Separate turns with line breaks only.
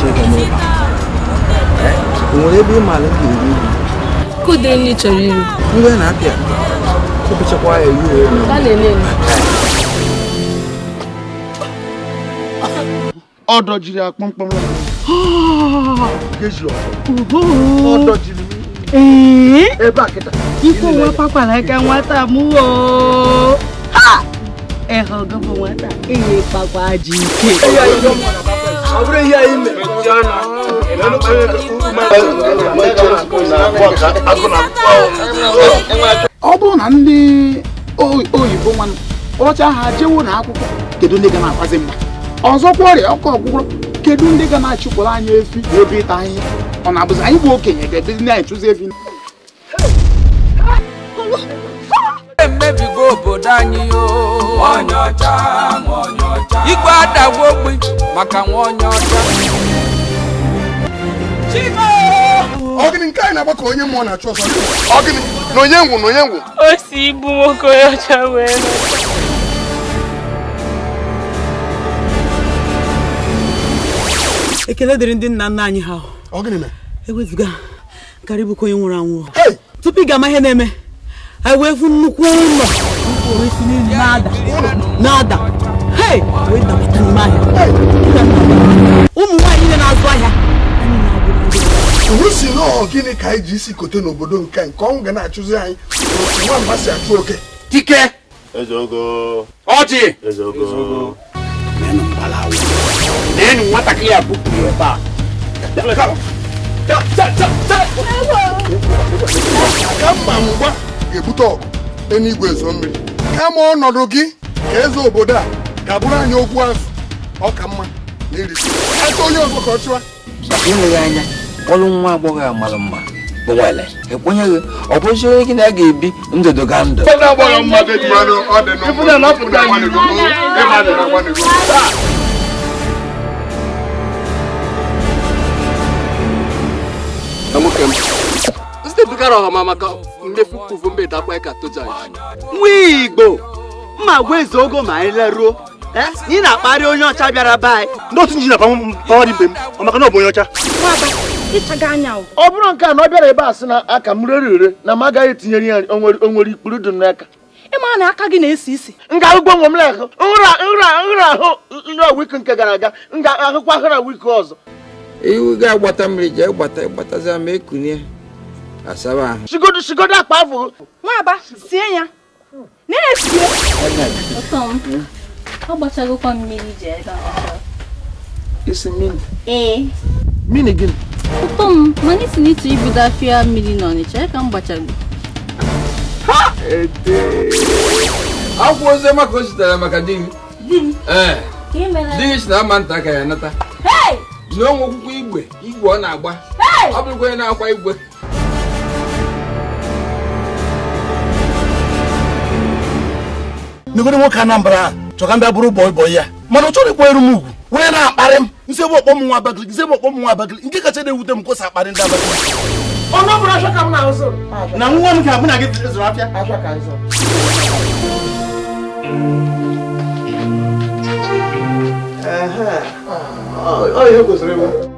Чекаме. akpọmkpọm. Ikwu nwa kpakwara aka nwata m Ha! Ẹ̀họ̀ gọ́bọ̀ nwata, èyí pàpà jì ike. ọ bụrụ ihe anyị mere ọ bụrụ na ndị oyibo nwanne kpọrọcha ha jewo na akwụkwọ kedu ndị ga na-akwazi mma ọzọkwa ọrịa ọkụ ọgwụgwọ kedu ndị ga na-achụpụrụ anyị efi na ebe ịta ahịhịa ọ na-abụzi anyị bụ okenye ga-ebizi na-echụzi efi obodo anyị onye ọcha onye ọcha igwe adagwa maka nwa onye ọcha anyị na-agba ka onye na-achụ ngwụ na onye ngwụ o ibu nwoke onye ọcha wee ekele dịrị ndị nna nna anyị ha ewezuga karịbụkwa onye nwụrụ anwụ tupu ị ga-ama ihe na-eme ewefu nnukwu ụlọ na-ada ụmụ nwaanyị niile na-azụ ahịa si nọọ gịnị ka anyị ji isi kote n'obodo nke nke ọnwụ ga na-achụzi anyị nwamba si achụ oke dike ọjị nenu nwatakịrị a bupụrụ ebe a kama ngwa ga-ebute ọgụ n'igwe ezo mmiri kama ọnọdụ gị ka eze obodo a ga-abụrụ anyị okwu azụ ọka mma na iri aka onye ọzọ ka ọ chụwa ịleghị anya ọrụ nwa agbọghọ a mara mma bụ nwere ekwenyeghị ọ bụzi onye gị na a ga-ebi ndụdụ ga ndụ nwoke m edugara ọha maka mmefu kwuvu mbe dakwa ka tojaji nwa igbo mma gwa eze ogo ma anyị leruo eh? ị na-akparị onye ọcha bịara be anyị n'otu nji na pawari mbe m maka na ọ bụ onye ọcha ọ bụrụ nke a na ọ bịara ebe a sị na aka m rere ure na m agaghị etinyere ya onwere ikpuru dị n'aka ịma na aka gị na-esi isi nga ahụgwọ nwe m na-ahụ nra nra nra ahụ nra wiki nke gara aga nga ahụkwa ahụra wiki ọzọ iwu ga-agbata mmiri jee gbata gbatazia ma ekunie asaba ahụ shigodo shigodo akpa afọ nwaba sie ya na-esie ọ gbachagokwa mmiri ji ebe isi mmiri ee mmiri gịnị ụtọ m mana isi n'ịtụ ibido afịa mmiri na ọnịcha ka m gbachago ha ede akwụ ozi ọma o zitere maka di m di gị eh. si na ama nta ka ya nata n'onwe okwukwe igwe igwe ọ na-agba ọ bụrụkwa onye na-akwa igwe megoro nwoke anambra a chọ ka m bịa bụrụ bọị bọị ya mana ọ chọrọ ịkpọ eru m ugwu onye na-akparị m nse bụ ọkpọ m nwa abakaliki nse bụ ọkpọ m nwa abakaliki nke kacha na-ewute m kwụsị akparị ndị abakaliki ọnụ ọbụla achọ ka m na-azụ na nwa m ga-abụ na gị zụrụ afịa achọ ka ịzụ Aha, ọ ihe kwesịrị ịbụ